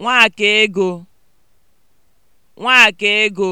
Nwaka ego Nwaka ego